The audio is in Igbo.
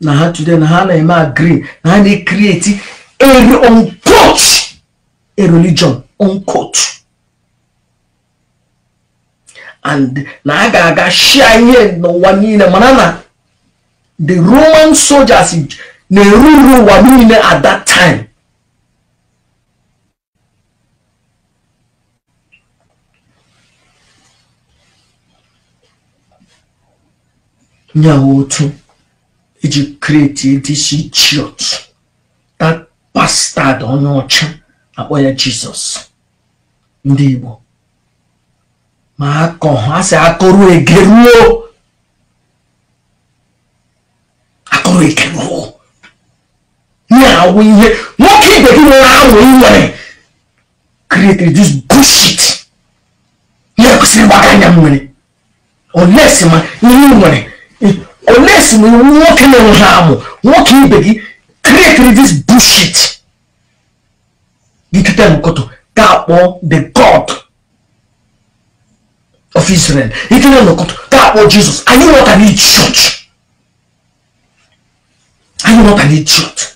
na ha today na ha na-eme green na ha na-ekriti a unquote a religion unquote and na a ga-aga shia ihe n'ụwa niile mana na the roman soldiers na-eruru ụwa niile at that time nyawo otu iji kreti this idiot that bastard onye ọcha akpọ ya jizọs ndị igbo ma akọ ha si akọrọ egeruo akọrọ egeruo ihe awụ ihe nwoke ibe gị nwere awụ ị nwere created this bullshit ihe kwesịrị ịgbaga anya m nwere unless ma ihe nwere unless we walk in harm, walk in begi, create this bullshit. Gitu tell Mukoto, that one the God of Israel. Gitu tell Mukoto, that one Jesus. Are you not an idiot? Are you not an idiot?